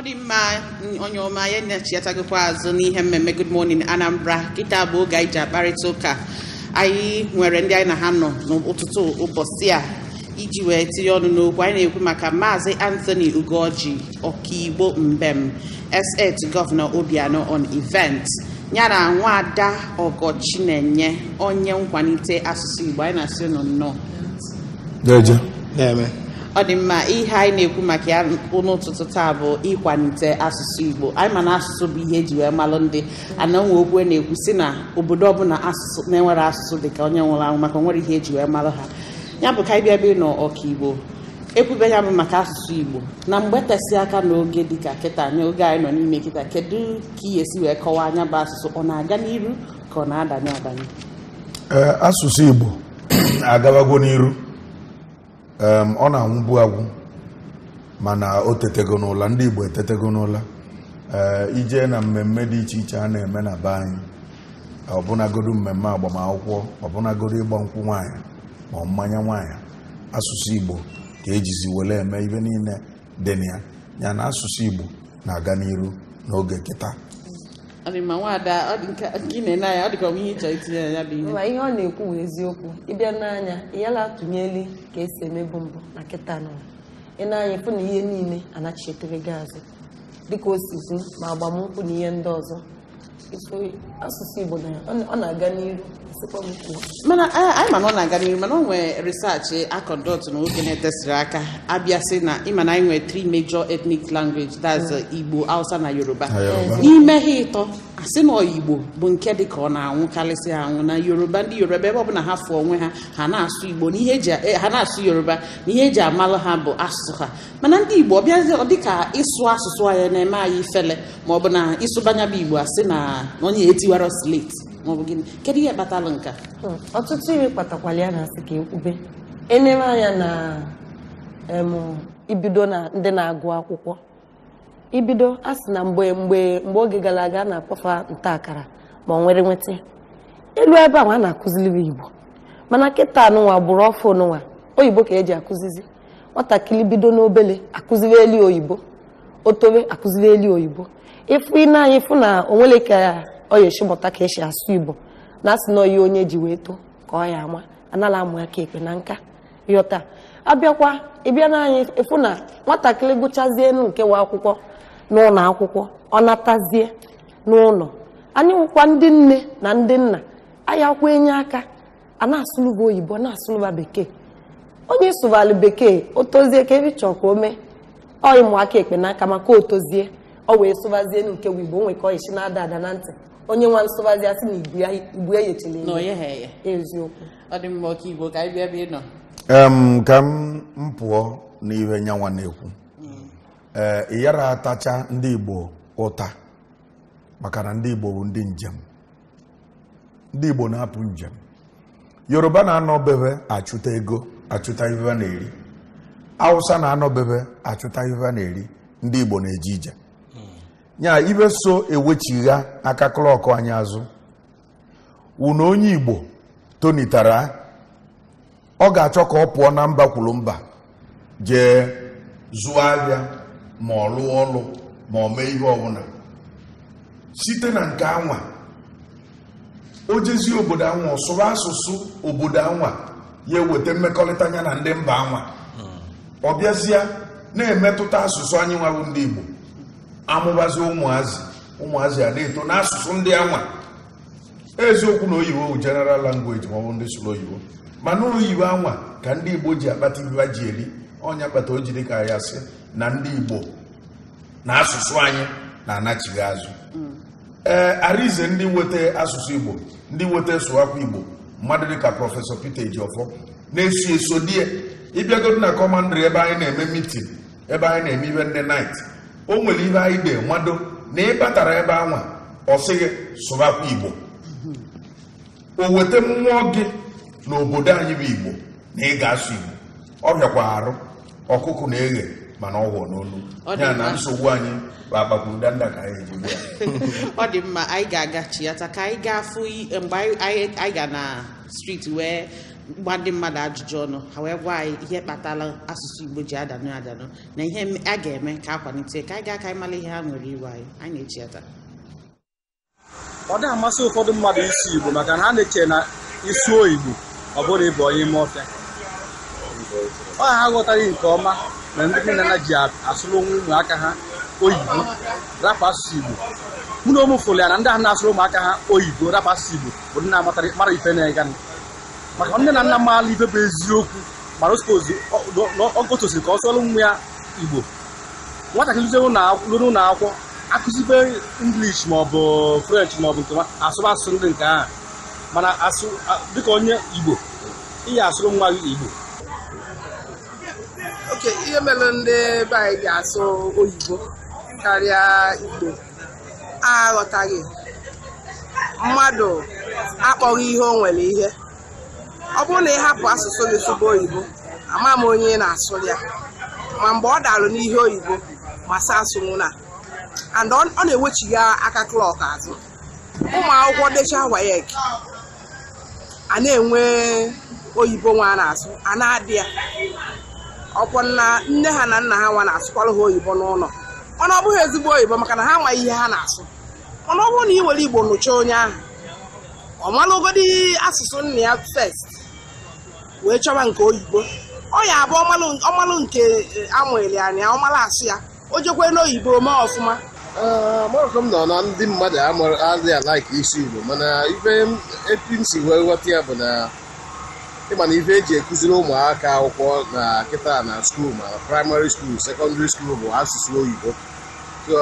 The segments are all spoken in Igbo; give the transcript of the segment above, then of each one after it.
ọ dị mma onye ọma ya na-echiatagokwa azụ n'ihe mmemme Good Morning Anambra kịta bụ oge anyị ji akparịta ụka anyị nwere ndị anyị na ha nọ n'ụtụtụ ụbọchị a iji wee tinye ọnụ n'okwu anyị na-ekwu maka maazị Anthony Ugoji ọkaigbo mbem estate gọvanọ Obianọ on event ya na enye onye nkwalite asụsụ Igbo anyị na-asị nọ nnọọ ọ dị mma ihe anyị na-ekwu maka ya n'ụtụtụ taa bụ ịkwalite asụsụ Igbo anyị mana asụsụ bụ ihe eji wee malụ ndị ananwe okwu e na-ekwu si na obodo ọbụla asụsụ na-enwere asụsụ dị ka onye nwụrụ anwụ maka nwere ihe eji wee malụ ha ya bụ ka anyị bịa bịabịa nọ igbo ekwube ya bụ maka asụsụ Igbo na mgbe tesị aka n'oge dịka kịta n'oge anyị nọ n'ime kịta kedu ka ị esi wee kọwaa anya bụ asụsụ ọ na-aga n'iru ka ọ na-adanye adanye asụsụ Igbo agawagwo n'iru ọ na-anwụbu agwụ mana o tetego n'ụla ndị Igbo etetego n'ụla eh, ije na mmemme dị iche iche a na-eme na be anyị mmemme agbamakwụkwọ ọbụnagodu ịgba nkwụ nwanyị ma mmanya nwaanyị asụsụ Igbo ka ejizi were eme ibe niile dị na ya yana asụsụ Igbo na-aga n'iru n'oge kịta arịma nwaada gị na naaya ọ dịka onwe ihe itinye ya bụ ihe ihe ọ na-ekwu bụ eziokwu ịbịa n'anya ịyala atụnyeli ka esi emebu mbụ na kịta nọ ị na-anya ịfụ na ihe niile anachichetere gị azụ dịka osizu ma agbamnkwụ na ihe ndị ọzọ asụsụ igbo ọ na-aga n'iru mana anyị eh, eh, ma eh, na ọ na-aga n'iru mana ọ nwee research akọndọt na oge na-etesịrị aka abịa sị na ịma na anyị nwere three major ethnic language that's uh, igbo hausa na yoruba n'ime ha ịtọ asị na igbo bụ nke dị ka ọ na-anwụkarịsị anwụ na yoruba ndị yoruba ebe ọ na ha fụ onwe ha ha na-asụ igbo ha na-asụ yoruba na ihe eji amalụ ha bụ asụsụ ha mana ndị igbo ọ bịazi ọ dịka ịsụ asụsụ anyị na-eme anyị ifele ma ọ bụ bụ igbo asị na na onye etiwara slate maọbụ gịnị kedu ihe kpatalụ nke hmm, ọtụtụ ihe kpatakwala ya na asị ka ekwube enere anya na ibido na ndị na-agụ akwụkwọ ibido a sị na mgbe mgbe mgbe oge gara aga na-akpọfa nta akara ma nwere nweta elu ebe ahụ a na-akụziri igbo mana kịta n'ụwa bụrụ ọfụ n'ụwa oyibo ka eji akụzizi nwatakịrị bido n'obele akụziri elu oyibo otobe akụziri elu oyibo ịfụ ị na-anya ịfụ na ka ọ esi mụta ka esi asụ igbo na asị na ọya onye ji wee too ka ọ ama anala amụ ya ka ekpe na nka yọta abịakwa ịbịa n'anya ịfụ na nwatakịrị gụchazie nke nwa akwụkwọ n'ụlọ akwụkwọ ọ natazie n'ụlọ anyị nwụkwa ndị nne na ndị nna anya kwa enye aka a na-asụlụba oyibo na-asụlụba bekee onye sụbalụ bekee o tozie ka ebe chọọ ka o mee ọ ịmụ aka ekpe n'aka maka o tozie ọ wee sụbazie nke wibo o nwekọ isi na-ada ada na ntị onye nwa nsụbazi asị na igbu ya ibu eziokwu ọ dị mma ọka ka m pụọ n'ihe nyanwa na-ekwu hmm. ee eh, ịyara atacha ndị igbo ụta maka na ndị igbo bụ ndị njem ndị igbo na-apụ njem yoruba na-anọbebe achụta ego achụta ihe na-eri awụsa na-anọbebe achụta ihe na-eri ndị igbo na eji ije nya ibe so ewechigha aka klọkụ anyị azụ wụna onye igbo tonitara ọ ga-achọ ka ọ pụọ na mba kwuru mba jee zụọ ahịa ma ọ lụọ ọlụ ma ọ mee ihe ọbụla site na nke anwa o jezie obodo anwa ọsụrụ asụsụ obodo anwa ya eweta mmekọrịta ya na ndị mba anwa hmm. ọ bịazịa na-emetụta asụsụ anyị nwawụ ndị igbo amụbazi ụmụazị ụmụazị a na-eto n'asụsụ ndị anwa eziokwu na oyibo bụ general language ma ọ bụ ndị sụrụ oyibo mana oyibo anwa ka ndị igbo ji akpata ibe ji eri ọnya kpata o jiri ka ya sị na ndị igbo na asụsụ anyị na-anachighị azụ mm. ee arize ndị nweta asụsụ igbo ndị nweta sụwakwa igbo mmadụ dịka prọfesọ Peter Ejiofor na-eso eso die ịbịagodu na kọmandịrị ebe anyị na-eme mitin ebe anyị na-eme ibe ndị nait o nwere ihe anyị ga-enwado na ị batara ebe anwa ọ sịghị sụbakwa igbo o weta mmụọ gị n'obodo anyị bụ igbo na ịga ga-asụ igbo ọ bịakwa arụ ọkụkụ na-eghe mana ọ gwọ n'olu ya na nsogbu anyị bụ agbapụdanda ka anyị eji ya ọ dị mma anyị ga-aga chiata ka anyị ga fụ mgbe anyị ga na striti wee gba ndị mmadụ ajụjụ ọnụ ha wee gwa anyị ihe kpatara asụsụ igbo ji adanụ adanụ na ihe a ga-eme ka a kwalite ka anyị gaa ka anyị ihe ha nwere iwe anyị anyị na-eji ata ọ dịghị amasị ụfọdụ mmadụ isi igbo maka na ha na-eche na isi oyibo ọ bụrụ ịbụ onye ime ọfịa ọ ha aghọtaghị nke ọma na ndị nne na ji asụrụ onwe ụmụaka ha oyibo rapụ asụsụ igbo mụ na ụmụ fụrụ ya na ndị ahụ na-asụrụ ụmụaka ha oyibo rapụ asụsụ igbo bụ ndị na-amara ife na-eganụ maka nne na nna m ibe bụ eziokwu mana ogotosiri ka ọ sụọlụ nwa ya igbo nwatakịrị lụrụ ụlọ akwụkwọ akụzibe english maọbụ french maọbụ nke asụba asụsụ ndị nke ahụ mana asụ dịka onye igbo ihe asụrụ nwa gị igbo oke ihe mere ndị be anyị ga-asụ oyibo karịa igbo aghọtaghị mmadụ akpọghị ihe o nwere ihe ọ bụrụ na ị hapụ asụsụ gị sụba oyibo ama m onye ị na-asụ ya ma mgbe ọ dalụ n'ihe oyibo ma sa asụnwụ na and ọ na-ewechiga aka klọk azụ ụmụ akwụkwọ decha wayek a na-enwe oyibo nwa na-asụ a na-adị ya ọkwọ na nne ha na nna ha nwa na-asụkwara ha oyibo n'ụlọ mana ọ bụghị ezigbo oyibo maka na ha amaghị ihe ha na-asụ mana ọ bụrụ na ị were igbo nụcha onye ahụ ọ malụgodi asụsụ nna ya fest wee chọba nke oyibo ọ ya abụ ọmalụ nke eh, amụeli anya ọmalụ asị ya o jekwe n'oyibo mee ọfụma eh, maka m nọ na ndị mmadụ adịghị alaiki isi igbo mana ife epi m si wee ghọta ya bụ na ịmana ife eji ekụziri ụmụaka akwụkwọ na kịta na skuul ma praịmarị skuul sekọndịrị skuul bụ asụsụ oyibo so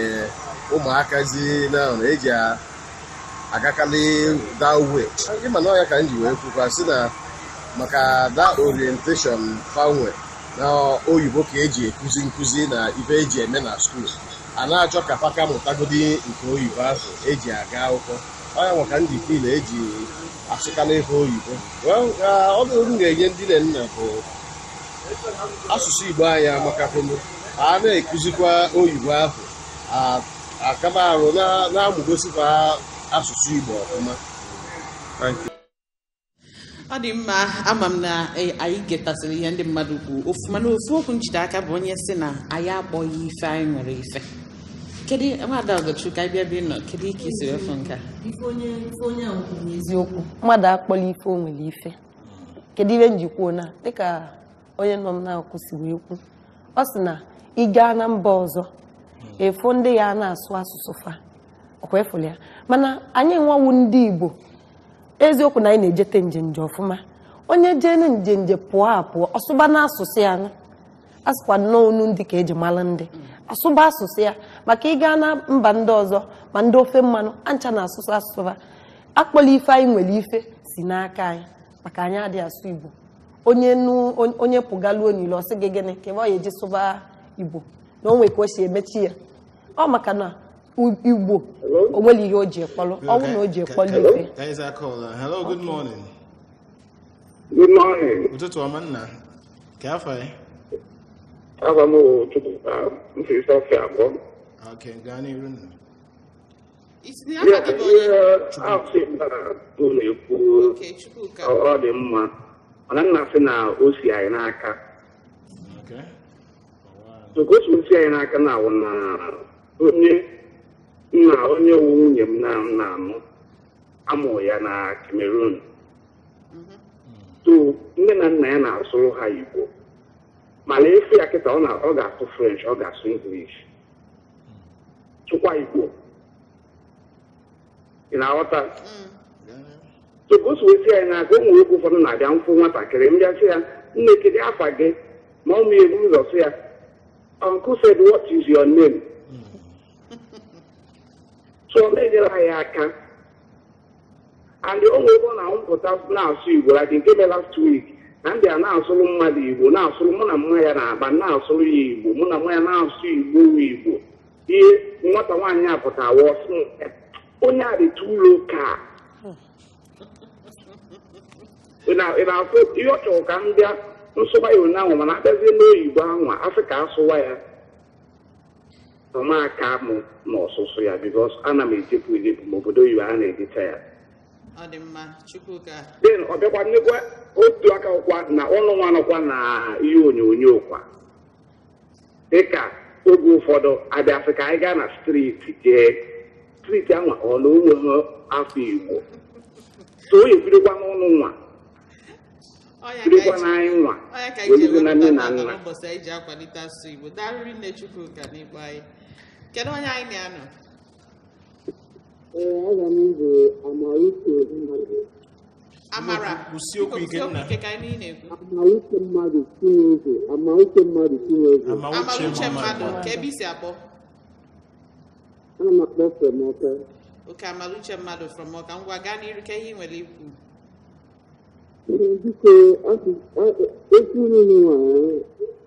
eh, ụmụaka zi na eji agakalị da uwe ịma na ọya ka m ji wee kwukwa sị na maka da orientation fanwe na oyibo ka eji ekuzi nkuzi na ife eji eme na skul a na-achọ ka paka mụtagodi nke oyibo ahụ eji aga akwụkwọ ọya nwaka ndị fil eji asụkana ife oyibo ọdụrụ m ga-enye ndị nne nna bụ asụsụ igbo anyị amakapụnụ a na-ekuzikwa oyibo ahụ akama arụ na amụgosikwa asụsụ Igbo ọfụma ọ dị mma ama m na e, anyị getasịrị ihe ndị mmadụ kwuo ofuma na ofu okwu njide aka bụ onye si na anyị akpọghị ife anyị nwere ife kedu mmadụ ọgọchukwu ka anyị bịa bi nọ kedu ike isi efu nke a eziokwu mmadụ akpọla ife o nwere ife kedu ihe njikwuo na dịka onye nọ m na-akụ si wee kwu ọ sị na ị gaa na mba ọzọ hmm. efu ndị ya na-asụ asụsụ fa ọkwa efuli ya mana anyị nwawu ndị Igbo eziokwu na anyị na-ejete nje ọfụma onye jee jene njenje pụọ apụọ ọsụba asụsụ ya asụkwa nnọọ ndị ka eji mara ndị asụba asụsụ ya maka ịga na mba ndị ọzọ ma ndị ofe mmanụ ancha na asụsụ asụsụ akpọla ife anyị nwere ife si n'aka anyị maka anyị adịghị asụ Igbo onye nu onye pụgaluo n'ile ọsị gị gịnị ka ebe ọ ya eji sụba Igbo na onwe ka o si emechi ya ọ maka na Igbo o nwere ihe o ji ekpọlụ ọnwụ na o ji ekpọlụ ife hello good morning good morning ụtụtụ ọma nna ka afọ ya afọ m ụtụtụ mfirisi ọfị abụọ Okay, gaa n'iru nna ihe afị ụ na-ekwu ọ dị mma mana nna sị na o si anyị n'aka otu o si anyị n'aka na awụ na onye nna onye wu nwunye m na nna m amụ ya na Cameroon to nne na nna ya na-asụrụ ha Igbo mana efi ya kịta ọ ga-asụ French ọ ga-asụ English chụkwa Igbo ị na-aghọta tụpụsụwesi anyị na-aga ụmụ nwoke ụfọdụ na-abịa nkwụ nwatakịrị m bịasị ya nne kedu afa gị ma ọ m ebu ụzọ sị ya uncle said what is your name ọ na menyela ya aka and o nwere na mpụta na-asụ igbo like nke mere last week na ndị a na-asụrụ mmadụ igbo na-asụrụ mụ na mma ya na-aba na-asụrụ ya igbo mụ na mma ya na-asụ igbo igbo ihe nwata nwaanyị a pụtawa hmm, onye a dị tulo ka ị na ihe ọ chọrọ ka ndị nsụba ya ụnyaahụ mana abịazie n'oyibo ahụ asị ka asụwa ya ụmụaka mụ e ah, e e na n'ọsụsụ ya bikos ana m ejepụ ejepụ ma obodo oyibo a na-ejecha ya den ọ bịakwa nnekwa otu aka ụkwa na ọnụ nwa nọkwa na ihe onyonyo kwa dịka oge ụfọdụ abịasị ka anyị gaa na striti jee striti ahụ ọ na onwe afọ igbo so o ebidokwa nwa birikwa nwa welugo na nne na nna Kedu onye anyị na-anọ? Ee, aga m igwe amara mmadụ. Amara, kwụsie okwu ike ka anyị na-ekwu. mmadụ Chineke, amara a mmadụ mmadụ ka ebe isi akpọ. Ana m amara mmadụ from Ọka, ngwa gaa ka ihe nwere ikwu.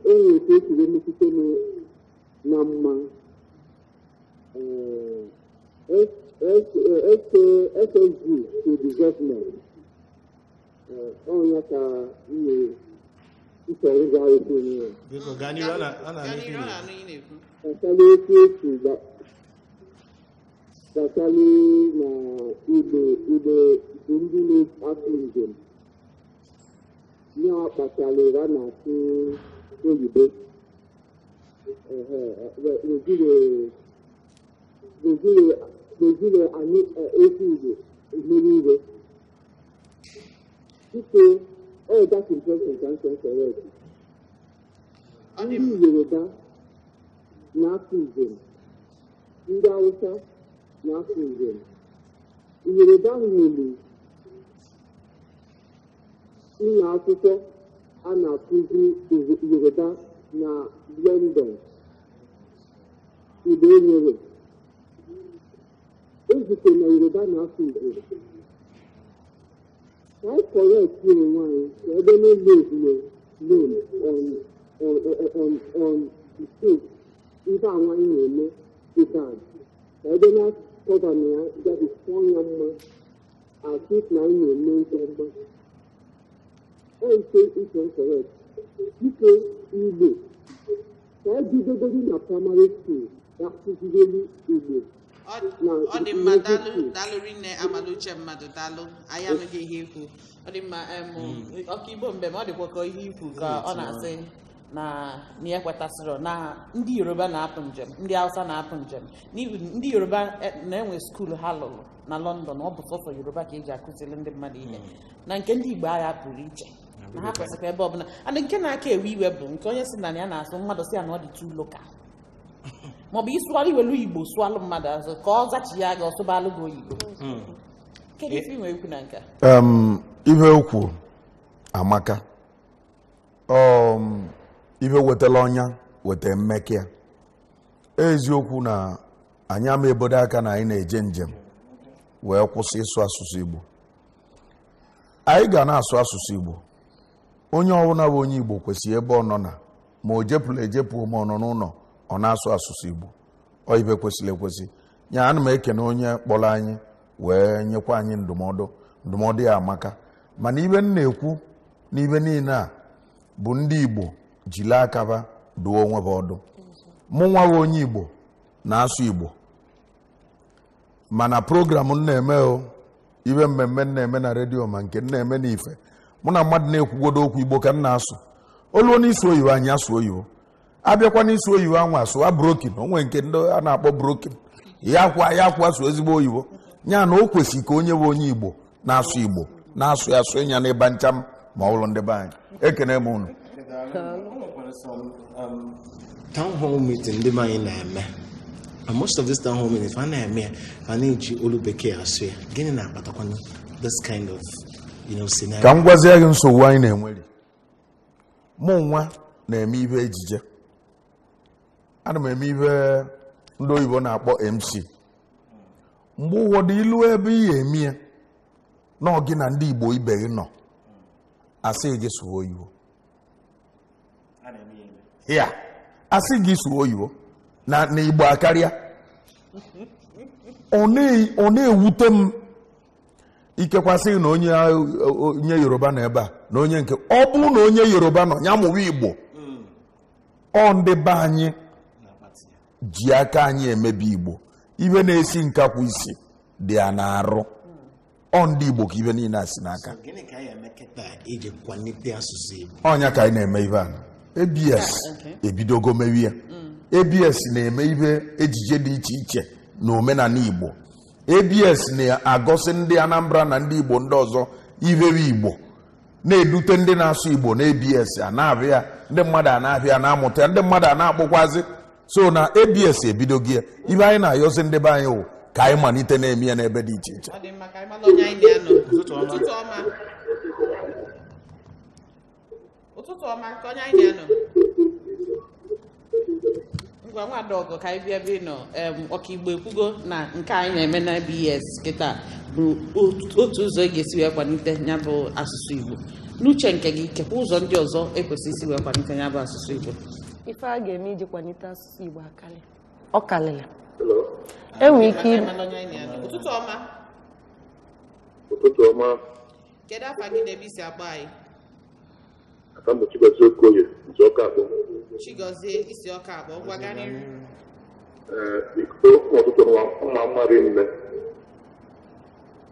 Ee, enwere na mma. SSG uh, uh, uh, to development ọ̀hún yẹn ka iye ìṣẹ̀rí ga ètò yẹn. Bíkọ̀ Gani rọ́nà ní ilé fún. Kàkálí tí ó sì gbà kàkálí na ibe ibe ndị na-afọ njem ya kpatara ra na asụ oyibo. Naijiria ga-ezuru anyị ezi igbo mmeri iwe biko ọdakimpeshọn ka nkekere ndị yoruba na-afụ njem ndị awụsa na-afụ njem yoruba nwere ụlọ akwụkwọ a na-akụzi yoruba na london igbo enwere Ejike na Yoruba na-asụ Igbo. Why correct you nwaanyị ka ebe no load no loan on on on on mistake ife anwa anyị na-eme dịka ka ebe na-akọba na ya gabisịa ya mma asịt na anyị na-eme nke ọma. Ejike is incorrect. Dike Igbo ka e ebidogodị na praịmarị skuul ga-akụzireli Igbo. ọ dị mma daalụ rinne amaluche mmadụ daalụ anyị anụghị ihe ikwu ọ dị mma hmm. ọkaigbo mbem ọ dịkwa ka ihe ikwu ka ọ na-asị na ya kwetasịrị na ndị yoruba na-apụ njem ndị hausa na-apụ njem ndị yoruba e, na-enwe skuulu ha lụrụ na london ọ bụ sọsọ yoruba ka eji akụziri ndị mmadụ ihe hmm. na nke ndị igbo agha pụrụ iche na ha kwesịkwa ebe ọbụla and nke na-aka ewe iwe bụ nke onye si na ya na-asụ mmadụ si ya na ọ dị too local maọbụ ịsụgharị iwelu igbo sụalụ mmadụ azụ ka ọ zachigha gị ọsụbalụ gị oyibo hmm. kedu ife inwe ekwu na nke ihe okwu amaka ihe wetala ọnya weta mmekịa eziokwu na anyị ama ebodo aka na anyị na-eje njem wee kwụsị ịsụ asụsụ igbo anyị ga na-asụ asụsụ igbo onye ọbụla bụ onye igbo kwesịrị ebe ọ nọ na ma o jepụla ejepụ ma ọ nọ n'ụlọ ọ na-asụ asụsụ igbo ọ ibe kwesịrị ekwesị ya ana m ekene onye kpọrọ anyị wee nyekwa anyị ndụmọdụ ndụmọdụ ya amaka mana ibe m na-ekwu n'ibe niile a bụ ndị igbo jiri akaba duo onwe ha ọdụ mụ nwawe onye igbo na-asụ igbo mana programụ m na-eme o ibe mmemme m na-eme na redio ma nke m na-eme n'ife mụ na mmadụ na-ekwugodo okwu igbo ka m na-asụ olu onye isi oyibo anyị asụ oyibo abịakwa n'isi oyibo anwa sụwa brokin onwe nke ndị a na-akpọ brokin ya kwa ya kwa so ezigbo oyibo ya na o kwesịrị ka onye bụ onye igbo na-asụ igbo na-asụ ya asụ ya n'ebe ncha ma ọ bụrụ ndị be anyị ekene m unu um, town hall meeting ndị anyị na-eme and most of this town hall meetings a na-eme ya a na-eji olu bekee asụ ya gịnị na-akpatakwa this kind of scenario ka m gwazie gị nsogbu anyị na-enwere mụ nwa na-eme ihe ejije ana m eme ibe ndị oyibo na-akpọ mc mgbe ụfọdụ ilu ebe ị ga-eme na gị na ndị igbo ibe gị nọ asị gị sụwa oyibo ya asị gị sụwa oyibo na igbo akarịa ọ na-ewute m ikekwasị na onye yoruba nọ ebe a na onye nke ọ bụrụ na onye yoruba nọ ya mụwa igbo mm. ọ ndị be anyị ji aka anyị emebe igbo ibe na-esi nkakwụ isi dị ya na-arụ ọ ndị igbo ka ibe niile a si n'aka ọnya ka anyị na-eme ibe a abs ah, ebidogo ya mm. abs na-eme ibe ejije dị iche iche na omenala igbo abs na agosi ndị anambra na ndị igbo ndị ọzọ iberi igbo na-edute ndị na-asụ igbo na abs a na-abịa ndị mmadụ a na-abịa na-amụta ndị mmadụ a na-akpụkwazi so na abs ebido gị ya ibe anyị na-ayọzi ndị be anyị wụ ka anyị malite na-eme ya n'ebe dị iche iche ụtụtụ ọma ka onye anyị na-anọ ngwa nwa dọgụ ka anyị bịa bịa nọ ọkaigbo ekwugo na nke anyị na-eme na BS kịta bụ otu ụzọ ị e ga-esi wee kwalite ya bụ asụsụ Igbo n'uche nke gị kekwa ụzọ ndị ọzọ ekwesị isi wee kwalite ya bụ asụsụ Igbo ife a ga-eme iji kwalite asụsụ Igbo akarị ọ karịrị enwere ike ụtụtụ ọma ụtụtụ ọma kedu afa gị na ebe isi agba anyị aka mbụ Chigozie Okoye isi ọka akpọ Chigozie isi ọka akpọ ngwa ganịrị ọtụtụ mma mmadụ nne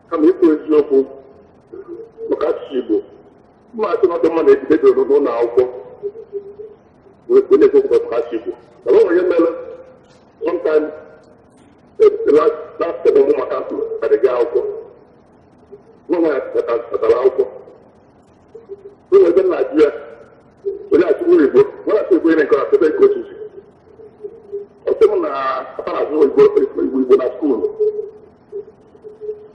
kama ikwu eziokwu maka asụsụ Igbo mma atụmatụ mmadụ ebidodoro n'ụlọ akwụkwọ when they talk about Hashiku. Now, what remember, one time, the last, last seven more Makasu, at the Gaoko, no one at the Laoko. So, we're in Nigeria, we're not worried, but what I say, we're in a class, they're coaches. Ọ̀sẹ̀ mu na apara àti òyìnbó ìgbò na skul.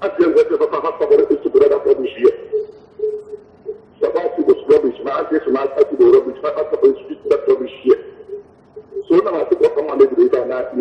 Àti ẹ̀gbẹ́ ti pàpà pàpà bọ̀dọ̀ tó ti bọ̀dọ̀ dàpọ̀ bù sí ẹ̀. Sọ̀bá ti bò sí rọ̀bì, sùmá àti sùmá àti bò rọ̀bì.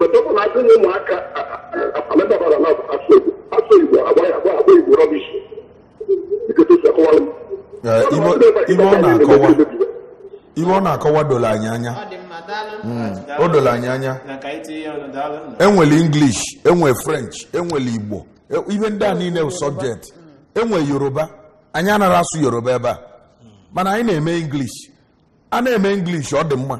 ọtọpụ na akụnye ụmụaka amadabara na asụ mm. e e e igbo asụ igbo agbaghị agba agba igbo rọbishi ibe ọ na-akọwa doro anyị anya o doro anyị anya enwere english enwere french enwere igbo ihe ndị a niile subject enwe yoruba anyị anaghị asụ yoruba ebe a mana anyị na-eme english a na-eme english ọ dị mma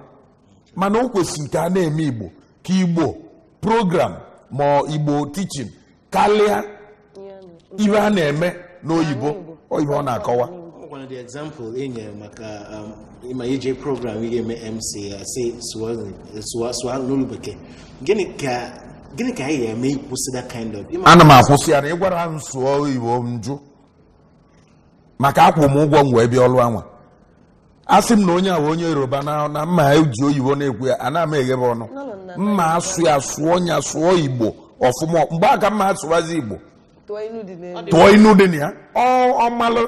mana o kwesịrị ka a na-eme igbo ka igbo program ma igbo tichin karịa ibe a na-eme n'oyibo oyibo ọ na-akọwa e um, ma ije program ị ga-eme mc uh, asị n'olu bekee gịnị ka anyị ga-eme ịkwụsị that kind of ana m akwụsị ya na ị gwara m sụọ oyibo m jụ maka akwụ m ụgwọ m wee bịa ọlụ anwa asị m na onye a onye yoruba na mma eji oyibo na-ekwu ya ana m eghebe ọnụ mma asụ ya sụọ nya sụọ igbo ọfụma mgbe a mma asụwazi igbo tụọ inu dị na ya ọmalụ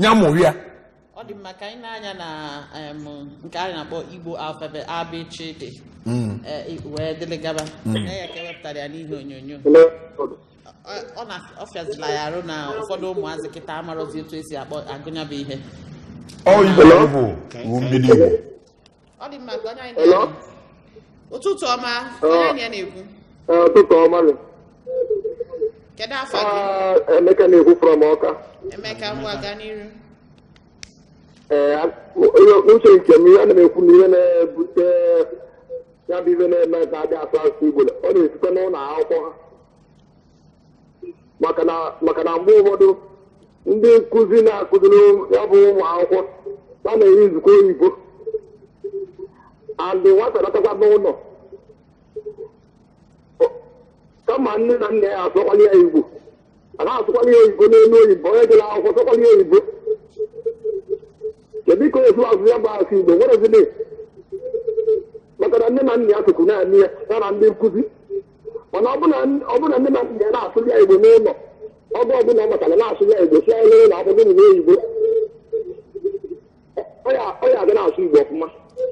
nya mụrụ ya ọ dị mma ka anyị na-anya na nke anyị na-akpọ igbo alfabet abchd hmm. e, wee dịlịgaba hmm. na ya ka ewepụtara ya n'ihe onyonyo ọ fịazila ya arụ na ụfọdụ ụmụazị kịta amarọzi otu esi akpọ agụnyabụ ihe ọ dị mma ka onye anyị na ụtụtụ ọma onye na ụtụtụ ọma kedu afọ gị emeka na-ekwu from ọka emeka ngwa aga n'iru uche nke m ihe na m ekwu na ihe na-ebute ya bụ ihe na-eme ebe adị asụ asụsụ igbo ọ na-esite n'ụlọ akwụkwọ ha maka na mgbe ụfọdụ ndị nkụzi na-akụziri ya bụ ụmụ akwụkwọ a na-enye nzukọ oyibo alị nwata n'ụlọ kama nne na nna ya asọkwala ya igbo a na ya oyibo n'elu oyibo onye jere akwụkwọ sọkwala ya oyibo kedu ka otu azụ ya bụ asụ igbo nwerezile maka na nne na nna ya sụkwu na ya ya na ndị nkụzi mana ọ bụrụ na nne na nna ya na-asụ ya igbo n'ụlọ ọgụ ọbụla ọ matara na-asụ ya igbo si anya n'ụlọ akwụkwọ n'oyibo ọ ya aga na-asụ igbo ọfụma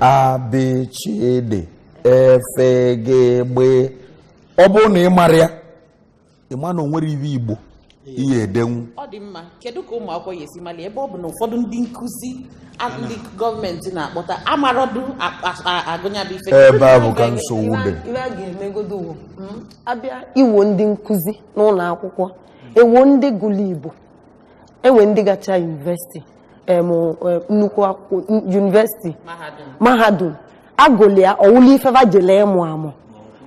abịchịdị efe gị gbe ọ bụrụ na ị mara ya ị ma na o nwere iwe igbo ihe edenwu ọ dị mma kedu ka ụmụ akwụkwọ esi mali ebe ọ bụ na ụfọdụ ndị nkuzi. ndị gọọmenti na-akpọta amarodu agụnyabe ife ebe a bụ ka nsogbu dị ihe a ga-emegodo uwo hmm? abịa iwo ndị nkuzi n'ụlọ akwụkwọ ewo ndị gụlụ igbo enwe ndị gacha yunivesiti Um, um, nnukwu akwụkwọ yunivesiti mahadum agụlụ ya ọwụla ifeva jele ịmụ amụ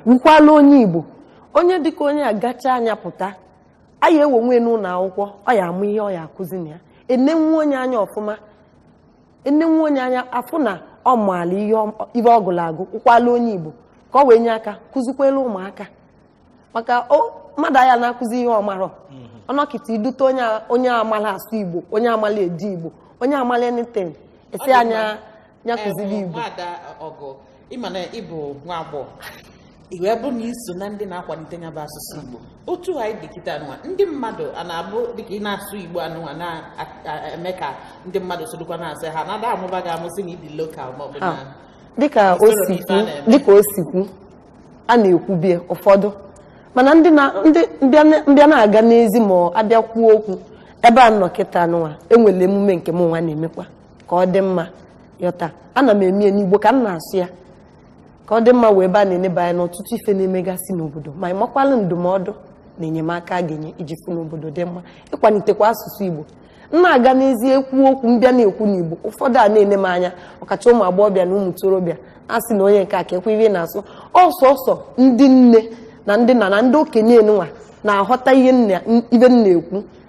wukwala onye igbo onye dịka onye a gacha anya pụta aya ewonwe n'ụlọ akwụkwọ ọ ya amụ ihe ọ ya akụzi na ya enenwu onye anya ọfụma enenwu onye anya afụ na ọ maala ihe ọ agụ ụkwala onye igbo ka ọ wee nye aka kụzikwela ụmụaka maka mmadụ anya na-akụzi ihe ọ marọ mhm. ọnọkịta idute onye amala asụ igbo onye amala eji igbo onye amala anything esi anya ya kụziri eh, igbo ịma na ịbụ nwa agbọghọ iwe bụ na iso na ndị na-akwalite ya bụ asụsụ igbo otu anyị dị nwa ndị mmadụ a na-abụ dịka ị na-asụ igbo anụnwa na-eme ka ndị mmadụ sodokwa na-asị ha na-ada amụba gị amụsị na ịdị lokal ma ọ bụ ah, na dịka o sikwu a na-ekwubie ụfọdụ mana ndị na ndị mbịa na-aga n'ezi ma abịa kwuo okwu ebe a nọ kịta nụnwa enwere emume nke m nwa na-emekwa ka ọ dị mma yọta ana m emie n'igbo ka m na-asụ ya ka ọ dị mma wee ebe a na-eneba anya n'ọtụtụ ife na-emegasị n'obodo ma ị ịmakwala ndụmọdụ na enyemaka a ga-enye iji fụ n'obodo dị mma ịkwalitekwa asụsụ igbo m na-aga n'ezie ekwu okwu mbịa na-ekwu n'igbo ụfọdụ a na-ene m anya ọkacha ụmụ agbọghọbịa na ụmụ ntorobịa a sị na onye nke a ka ihe na-asụ ọsọsọ ndị nne na ndị nna na ndị okenye nwa na-aghọta ihe m na-ekwu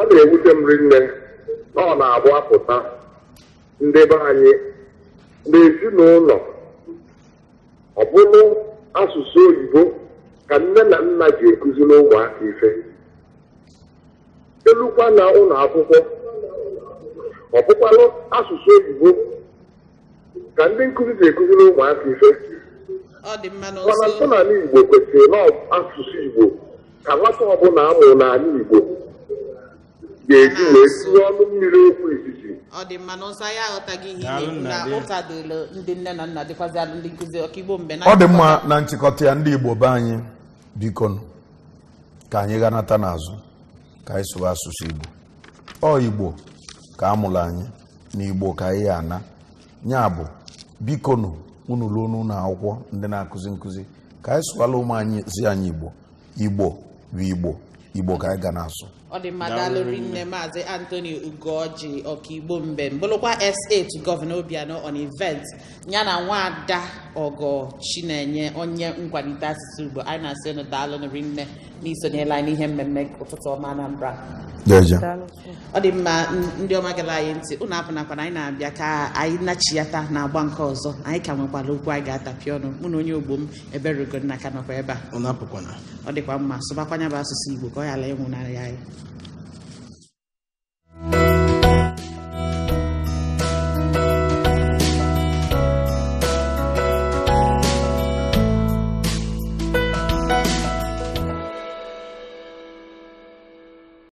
ọ na-ewute m rinne na ọ na-abụ apụta ndị be anyị n'ezinụlọ ọbụlụ asụsụ oyibo ka nne na nna ji ekuzi n'ụmụaka ife elukwa na ụlọ akwụkwọ Ọbụkwa asụsụ oyibo ka ndị nkụzi ji ekuzi n'ụmụaka ife mana ntụnala igbo kwesịrị na asụsụ igbo ka nwata ọbụla amụ n'anya igbo ga-eji wee sụọ ọnụ mmiri okwu izizi ọ dị mma na nsọ anyị aghọtaghị ihe na-ekwu na ụtadolo ndị nne na nna dịkwazị ndị nkụzi ọkaigbo mgbe na ọ dị mma na nchịkọta ya ndị igbo be anyị biko ka anyị ghanata n'azụ ka anyị sụwa asụsụ igbo ọ igbo ka a mụrụ anyị na igbo ka anyị ya ana ya bụ biko nụ unu ruo n'ụlọ akwụkwọ ndị na-akụzi nkụzi ka anyị sụwala ụmụ anyị zi anyị igbo igbo bụ igbo igbo ka anyị ga na-asụ ọ dị mma nne maazị antoni ugoji ọkaigbo mbe bụrụkwa s8 gọvanọ obianọ on event ya na nwaada ọgọ chinenye onye nkwalite asụsụ ugbo anyị na-asị ụnụ daalụrụ nne n'isonyela anyị n'ihe mmemme ụtụtụ ọma anambra ọ dị mma ndị ọma gara anyị ntị ụnụ apụnakwana anyị na-abịa ka anyị nachiyata na agba nke ọzọ anyị ka nwekwala okwu anyị ga-atapị ọnụ mụ na onye ogbo m eberugonna ka nọkwa ebe a ọ dịkwa mma sụbakwanya bụ asụsụ igbo ka ọ ghara ịnwụnarị anyị